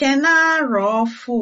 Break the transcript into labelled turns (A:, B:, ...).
A: Ekene arọọfụ!